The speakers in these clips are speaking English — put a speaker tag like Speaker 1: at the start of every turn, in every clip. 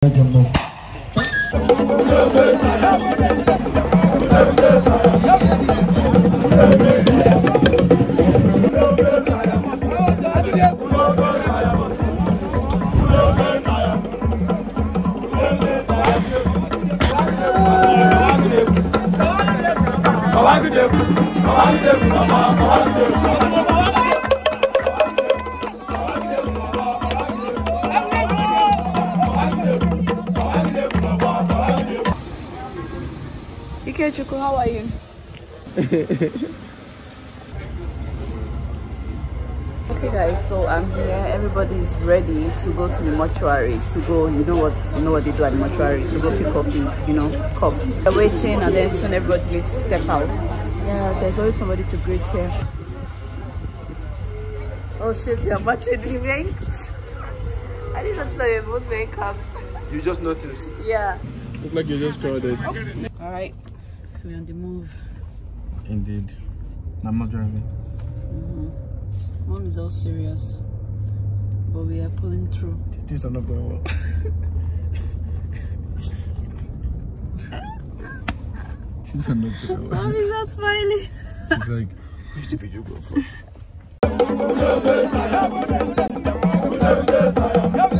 Speaker 1: Jumbo. Come on, come on, come on, come on. Okay, Chuku, how are you? okay guys so i'm here everybody is ready to go to the mortuary to go you know what you know what they do at the mortuary to go pick up the you know cups they're waiting and then soon everybody's going to step out yeah there's always somebody to greet here oh shit we are matching we are i did not that most wearing caps you just noticed yeah look like you just crowded oh. all right we're on the move. Indeed. I'm not driving. Mm -hmm. Mom is all serious. But we are pulling through. These are not going well. These are not going well. Mom is all smiling. She's like, where's the videographer?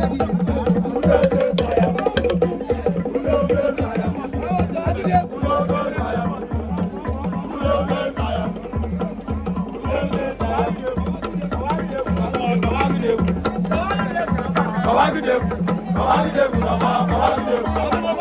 Speaker 1: Babagide, Babagide, Babagide, Babagide.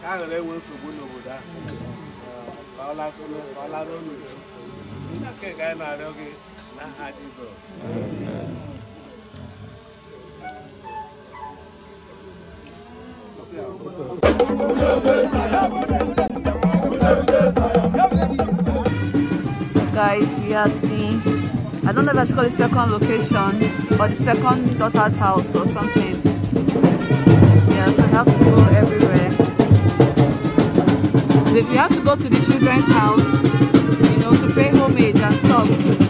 Speaker 1: guys we are at the i don't know if that's called the second location or the second daughter's house or something yeah so i have to go everywhere if you have to go to the children's house, you know, to pay homage and stuff.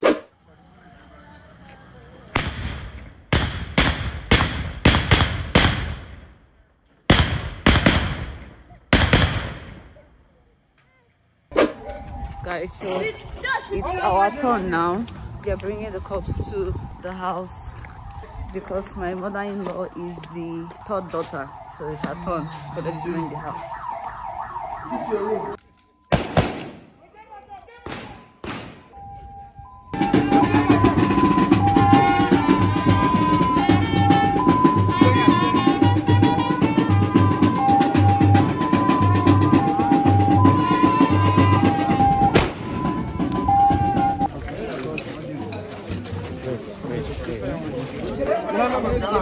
Speaker 1: guys so it's our turn now we are bringing the cops to the house because my mother-in-law is the third daughter so it's her turn for them to bring the house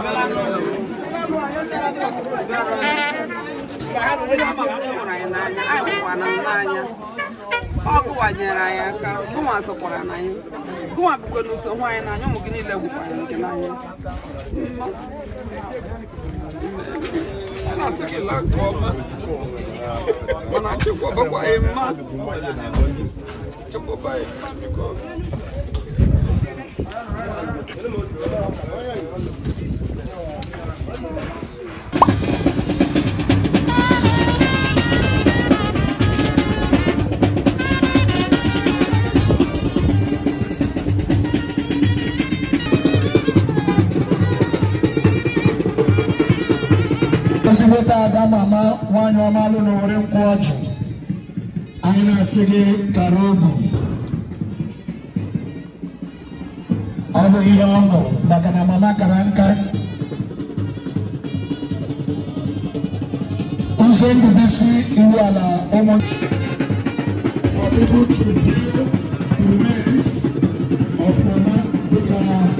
Speaker 1: hụrụ anyị n'anya anyị n'anya ọ gụwanyere anyị aka gụnwa sokwara nanya anyị gụnwa bụkwa na anyị n'anya ụmụ gị niile gwụkwara gị n'anya nke ọma mana chukwu ọbakwa mma biko ta ada mama nwanyị ọma alụ n'owere nkwụ ọjị anyị na-asị gị tara obi ọ bụ ihe ọṅụ maka na mama kara nka ụzọ ndụbisi iwu ala ụmụ For people to feel the mess of Mama Bukama.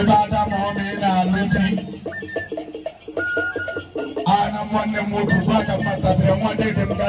Speaker 1: ebe adama ọ na-alụte ana nwanne m nwoke gwa ka mmatatịrị nwanne dị mba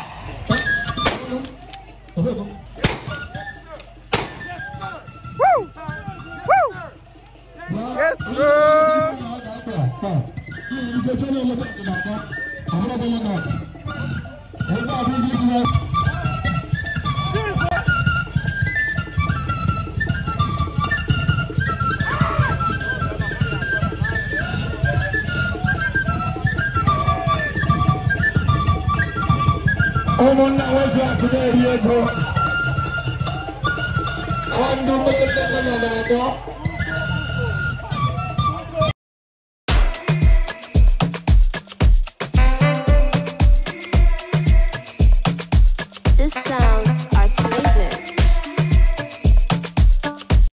Speaker 1: സ്ഥാപനം അവിടെ പോകുന്നു എന്താ അഭിനയിക്കുന്നത് Omunna wasa kudariye go. Andu mutlu kalana go.